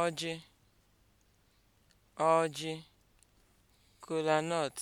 ọjị ọjị kolanut